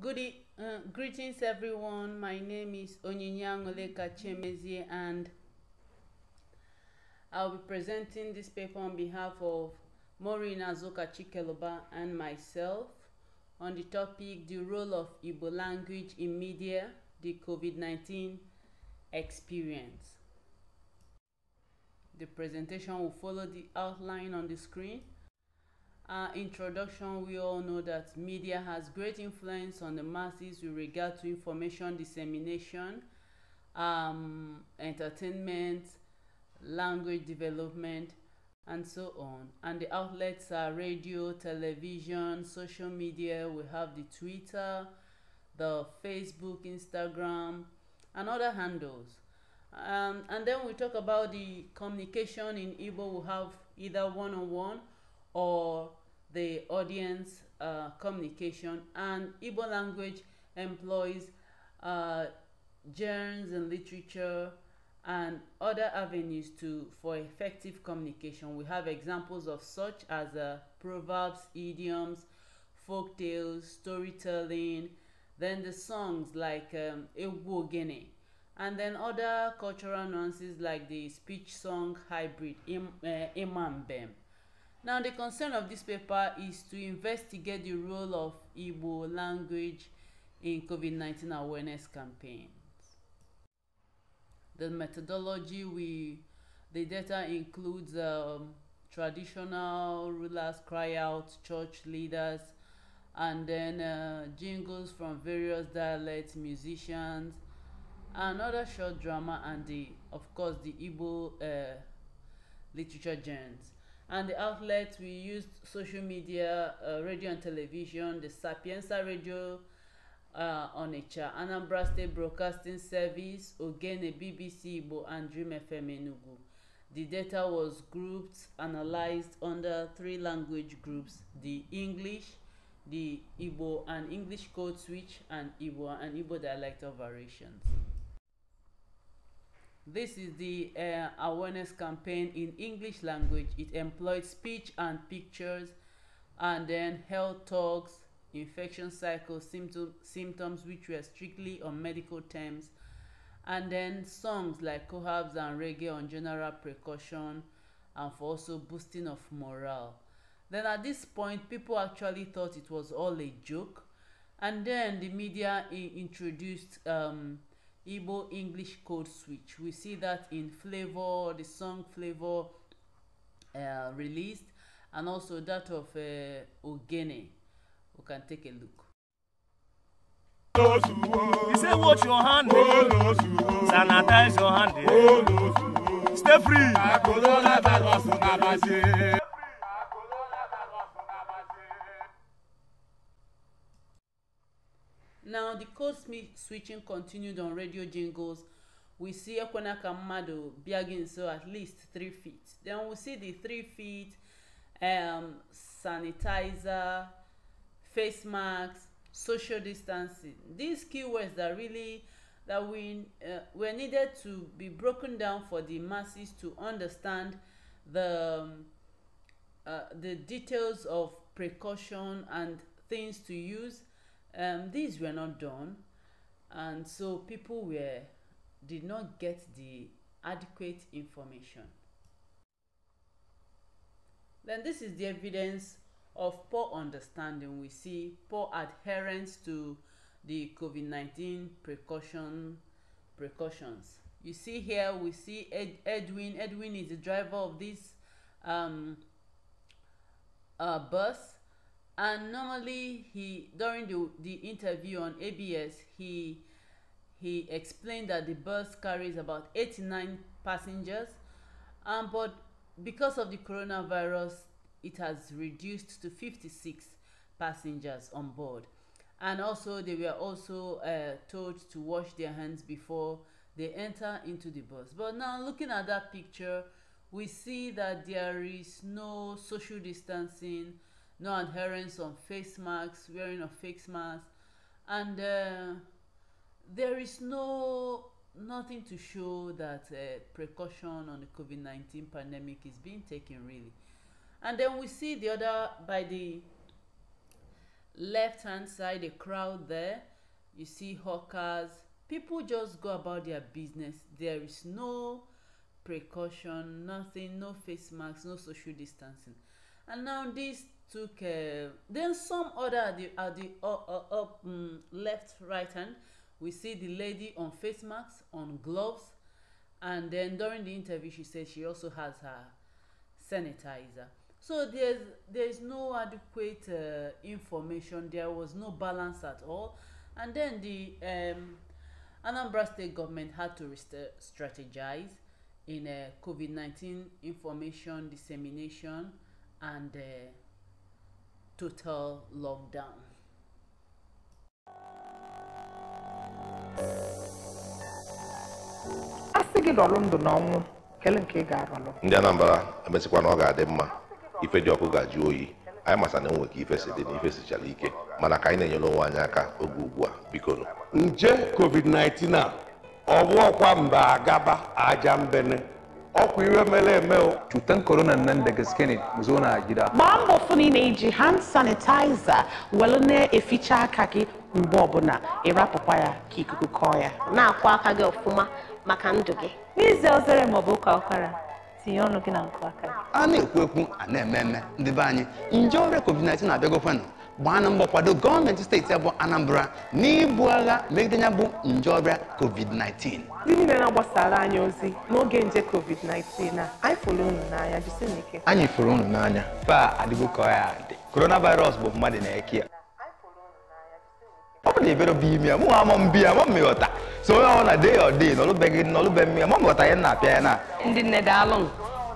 Good e uh, greetings, everyone. My name is Onyinyang Oleka Chemezie, and I'll be presenting this paper on behalf of Maureen Azuka Chikeloba and myself on the topic The Role of Igbo Language in Media, the COVID 19 Experience. The presentation will follow the outline on the screen uh, introduction, we all know that media has great influence on the masses with regard to information dissemination, um, entertainment, language development, and so on. And the outlets are radio, television, social media. We have the Twitter, the Facebook, Instagram, and other handles. Um, and then we talk about the communication in Igbo. We have either one on one or the audience uh, communication and Igbo language employs uh, and literature and other avenues to for effective communication. We have examples of such as uh, proverbs, idioms, folk tales, storytelling, then the songs like um, Egwogene, and then other cultural nuances like the speech song hybrid Im, uh, Imambem. Now, the concern of this paper is to investigate the role of Igbo language in COVID-19 awareness campaigns. The methodology we the data includes um, traditional rulers, cry out, church leaders, and then uh, jingles from various dialects, musicians, another short drama, and the of course the Igbo uh, literature genres and the outlets we used social media uh, radio and television the sapienza radio uh, onitsha anambra state broadcasting service ogene bbc igbo and dream fm enugu the data was grouped analyzed under three language groups the english the igbo and english code switch and igbo and igbo dialectal variations this is the uh, awareness campaign in English language. It employed speech and pictures and then health talks, infection cycle symptom, symptoms which were strictly on medical terms and then songs like cohabs and reggae on general precaution and for also boosting of morale. Then at this point people actually thought it was all a joke and then the media introduced um, Igbo English code switch. We see that in Flavor, the song Flavor uh, released, and also that of uh, Ogene. We can take a look. You say, watch your hand, eh? sanitize your hand, eh? stay free. Now, the code switching continued on radio jingles. We see Ekwana Kamado begging so at least three feet. Then we see the three feet, um, sanitizer, face masks, social distancing. These keywords that really that we uh, were needed to be broken down for the masses to understand the um, uh, the details of precaution and things to use um, these were not done and so people were did not get the adequate information then this is the evidence of poor understanding we see poor adherence to the covid nineteen precaution precautions you see here we see Ed, edwin edwin is the driver of this um, uh, bus and normally he during the, the interview on abs he he explained that the bus carries about 89 passengers um, but because of the coronavirus it has reduced to 56 passengers on board and also they were also uh, told to wash their hands before they enter into the bus but now looking at that picture we see that there is no social distancing no adherence on face masks, wearing of face masks, and uh, there is no nothing to show that uh, precaution on the COVID nineteen pandemic is being taken really. And then we see the other by the left hand side, a crowd there. You see hawkers. People just go about their business. There is no precaution, nothing, no face masks, no social distancing. And now this took uh, then some other at the at the uh, uh up um, left right hand we see the lady on face masks on gloves and then during the interview she said she also has her sanitizer so there's there's no adequate uh, information there was no balance at all and then the um, anambra state government had to uh, strategize in uh, covid-19 information dissemination and uh, total lockdown. a sị gị lọrọ ndụ n'ọnwụ kele nke ị ga ndị Anambra emesịkwa na ọ ga-adị mma ife dị ọkụ ga-ajụ oyi anyị masa na enwe ka ife si dị na ife sichara ike mana ka anyị na-enyere onwe anyị aka oge ugbu a bikonu nje covid-19 a ọ bụ ọkwa mba agaba aja mbene ọkwa iwe mere eme cutan corona nan da gaske ne zo na gida gbaa mbọ fụ na ị na-eji hand sanitizer welu na-eficha e aka gị mgbe ọbụla ịrapụkwa e ya ka ikuku kọọ ya na-akwọ aka gị ọfụma maka ndụ gị n'ize ozere bụ ụka ụkwara tinye ọnụ gị na nkụ aka a na-ekwu ekwu a na-eme eme ndị be anyị nje ọrịa covid-19 na-abịagokwanụ gbaa na mbọ kwado gọọmenti steeti abụ Anambra n'ibu agha megide ya bụ nje ọbịa COVID-19 ndị niile na-agbasara anyị ozi n'oge nje COVID-19 a anyị fụrụ unu n'anya anyị fụrụ unu n'anya fa adịgo ka ya dị coronavirus bụ mmadụ na-eke ya ọ bụ na ebere bụ ime ya mụ ama mbi ya ma mmịghọta so onye ọ na de ya ọ dị n'ọlụbeghị n'ọlụbe mmiri ma m ya na-apịa ya na ndị nne daalụ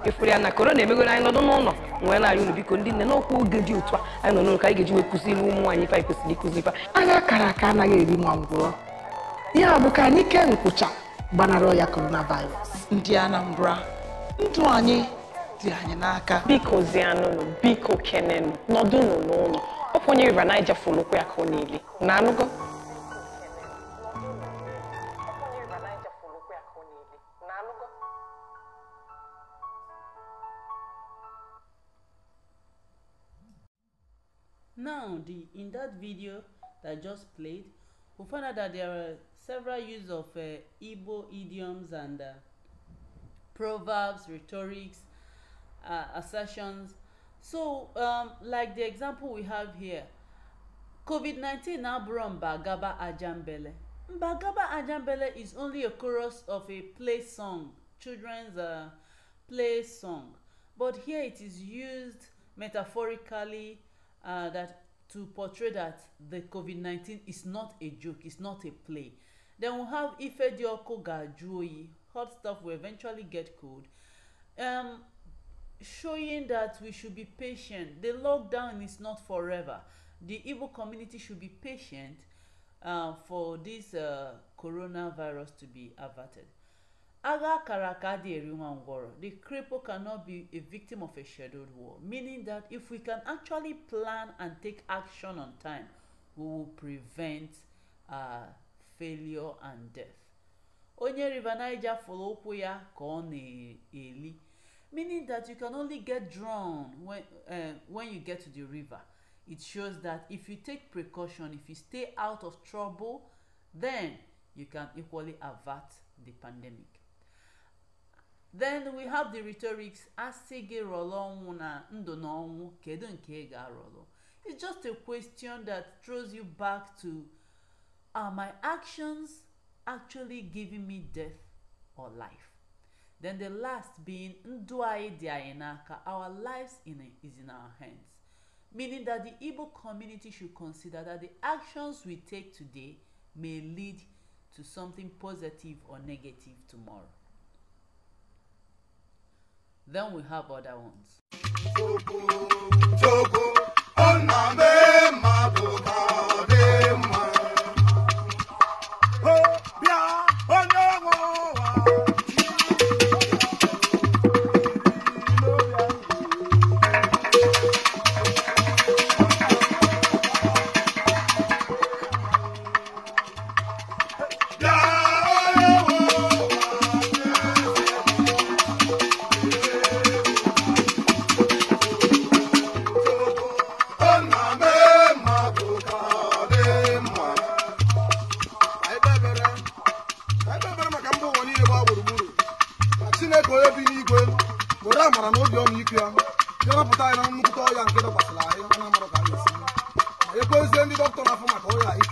ịfụrụ ya na korona emegoro anyị nọdụ n'ụlọ nwee na-arị unu biko ndị nne n'okwu oge dị otu a anyị nọ n'ụlọ ka anyị ga-eji wee kụziri ụmụ anyị ife kwesịrị ịkụzi ife anya akara aka anaghị eri ma ngwụrọ ya bụ ka anyị ke nkwụcha gbanarị ọya korona virus ndị Anambra ndụ anyị dị anyị n'aka biko zianụnụ biko kenenụ nọdụnụ n'ụlọ ọ bụ onye river Niger folokwa ya ka ọ na-ele na anụgo now the in that video that I just played we found out that there are several use of uh, Igbo idioms and uh, proverbs rhetorics uh, assertions so um, like the example we have here covid-19 now brought mbagaba ajambele mbagaba ajambele is only a chorus of a play song children's uh, play song but here it is used metaphorically uh, that to portray that the COVID-19 is not a joke, it's not a play. Then we'll have Ifedioko Gajuoyi, hot stuff will eventually get cold. Um, showing that we should be patient. The lockdown is not forever. The Igbo community should be patient uh, for this uh, coronavirus to be averted. Aga Karakadi Eriwangoro, the cripple cannot be a victim of a scheduled war, meaning that if we can actually plan and take action on time, we will prevent uh, failure and death. Onye River Niger follow ya ka ọ eli meaning that you can only get drowned when, uh, when you get to the river. It shows that if you take precaution, if you stay out of trouble, then you can equally avert the pandemic then we have the rhetorics asị gị rọrọ ọnwụ na ndụ na ọnwụ kedu nke ị ga-arọrọ it's just a question that throws you back to are my actions actually giving me death or life then the last being ndụ anyị dị anyị n'aka our lives in a, is in our hands meaning that the igbo community should consider that the actions we take today may lead to something positive or negative tomorrow Then we have other ones.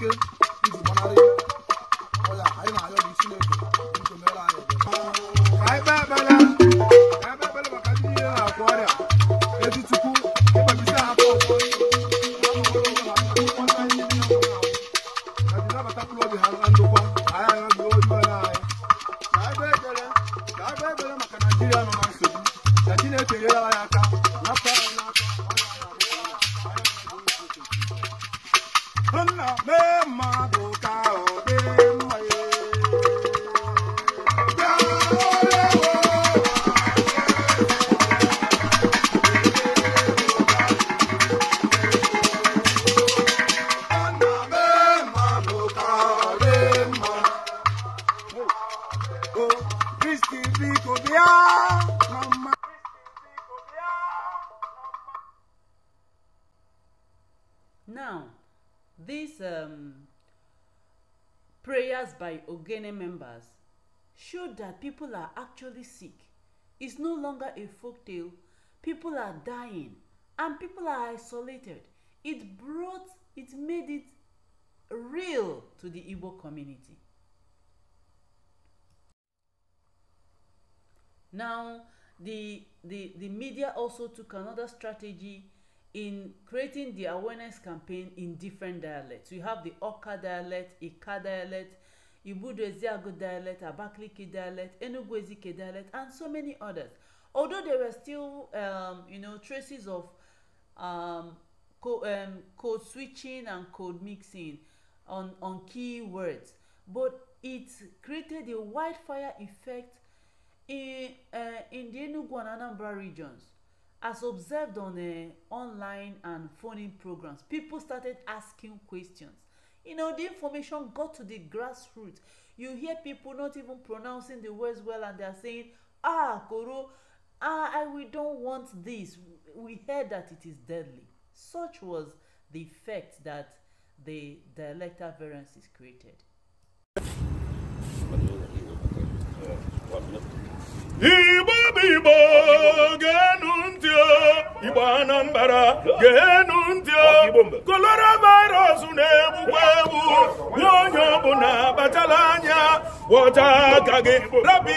nigga. Ogene members showed that people are actually sick. It's no longer a folk tale. People are dying and people are isolated. It brought, it made it real to the Igbo community. Now, the, the, the media also took another strategy in creating the awareness campaign in different dialects. We have the Oka dialect, Ika dialect, Ibudo Eziago dialect, Abakaliki dialect, Enugu Ezike dialect, and so many others. Although there were still, um, you know, traces of um, co- um, code switching and code mixing on, on key words, but it created a wildfire effect in, uh, in the Enugu and Anambra regions. As observed on uh, online and phone in programs, people started asking questions you know the information got to the grassroots you hear people not even pronouncing the words well and they are saying ah koro ah we don't want this we heard that it is deadly such was the effect that the dialectal variances created. igbo bụ igbo ga anambara ntị enu ntị kolora virus na-egbukwa egbu nye onye ọbụla batala anya wọta aka gị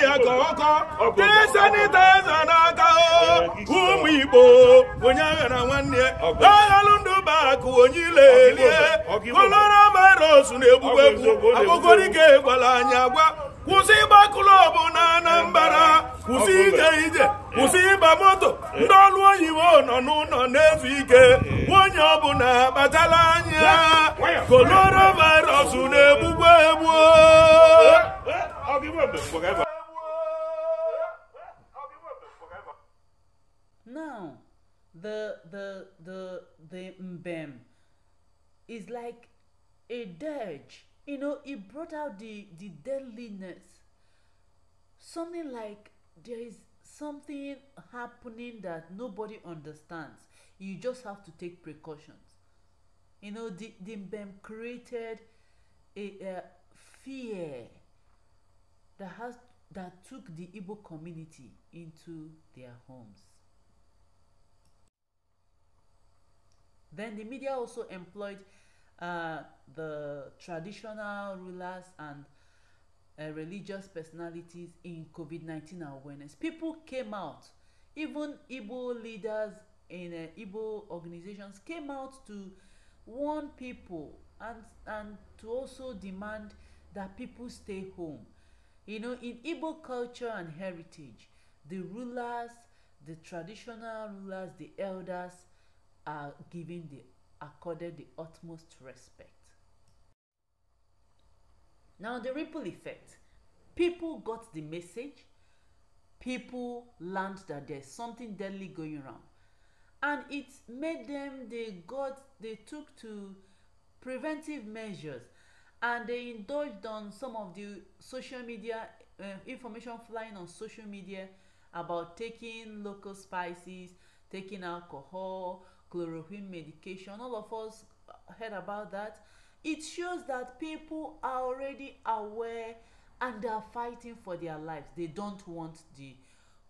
ya ka ọkọ tee sanitaiza n'aka ụmụ igbo onye aghara nwanne aghalụ ndụ bakụ onye ilelie kolora virus na-egbukwa egbu agbụgorike gwara anya gwa kwụsị klọb na anambra kwụsị ije ije kwụsị ịba moto ndị ọrụ oyibo nọ n'ụlọ na-ezu ike nwunye eh. ọbụla kpatala anya koronavirus na-egbugbu eh. eh, egbu Now, the the the the mbem is like a dirge you know he brought out the the deadliness something like there is something happening that nobody understands you just have to take precautions you know the the bem created a, a fear that has that took the Igbo community into their homes. Then the media also employed Uh, the traditional rulers and uh, religious personalities in COVID 19 awareness. People came out, even Igbo leaders in uh, Igbo organizations came out to warn people and, and to also demand that people stay home. You know, in Igbo culture and heritage, the rulers, the traditional rulers, the elders are giving the accorded the utmost respect. Now, the ripple effect people got the message, people learned that there's something deadly going around, and it made them they got they took to preventive measures and they indulged on some of the social media uh, information flying on social media about taking local spices taking alcohol chloroquine medication all of us heard about that it shows that people are already aware and they are fighting for their lives they don't want the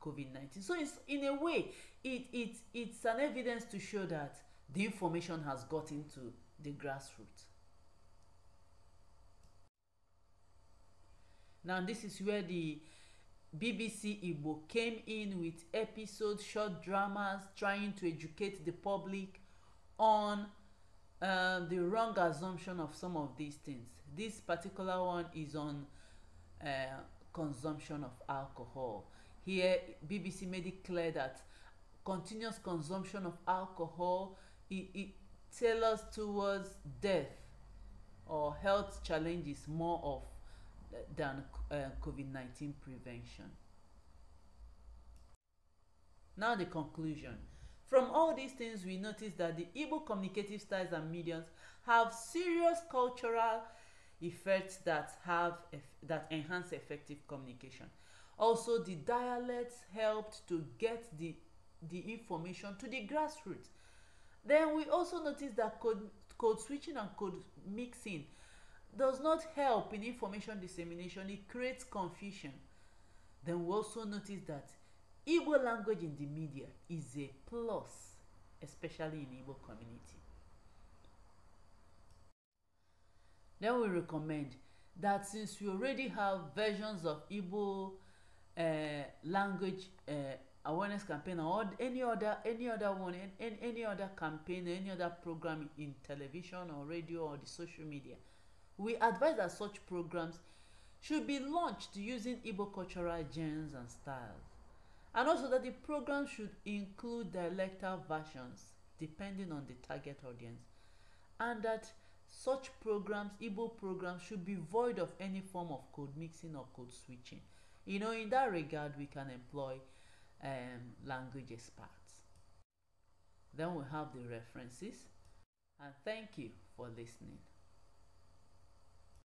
covid-19 so it's in a way it it it's an evidence to show that the information has got into the grassroots now this is where the BBC Igbo came in with episode short dramas trying to educate the public on uh, the wrong assumption of some of these things. This particular one is on uh, consumption of alcohol. Here, BBC made it clear that continuous consumption of alcohol it, it tailors towards death or health challenges more of than uh, eh, COVID-19 prevention. Now the conclusion. From all these things, we notice that the Igbo communicative styles and mediums have serious cultural effects that have that enhance effective communication. Also, the dialects helped to get the the information to the grassroots. Then we also notice that code, code switching and code mixing does not help in information dissemination, it creates confusion. Then we also notice that Igbo language in the media is a plus, especially in Igbo community. Then we recommend that since we already have versions of Igbo uh, language uh, awareness campaign or any other any other one and any, any other campaign any other program in television or radio or the social media we advise that such programs should be launched using Igbo cultural genes and styles, and also that the program should include dialectal versions depending on the target audience, and that such programs, Igbo programs, should be void of any form of code mixing or code switching. You know, in that regard, we can employ um, language experts. Then we have the references, and thank you for listening.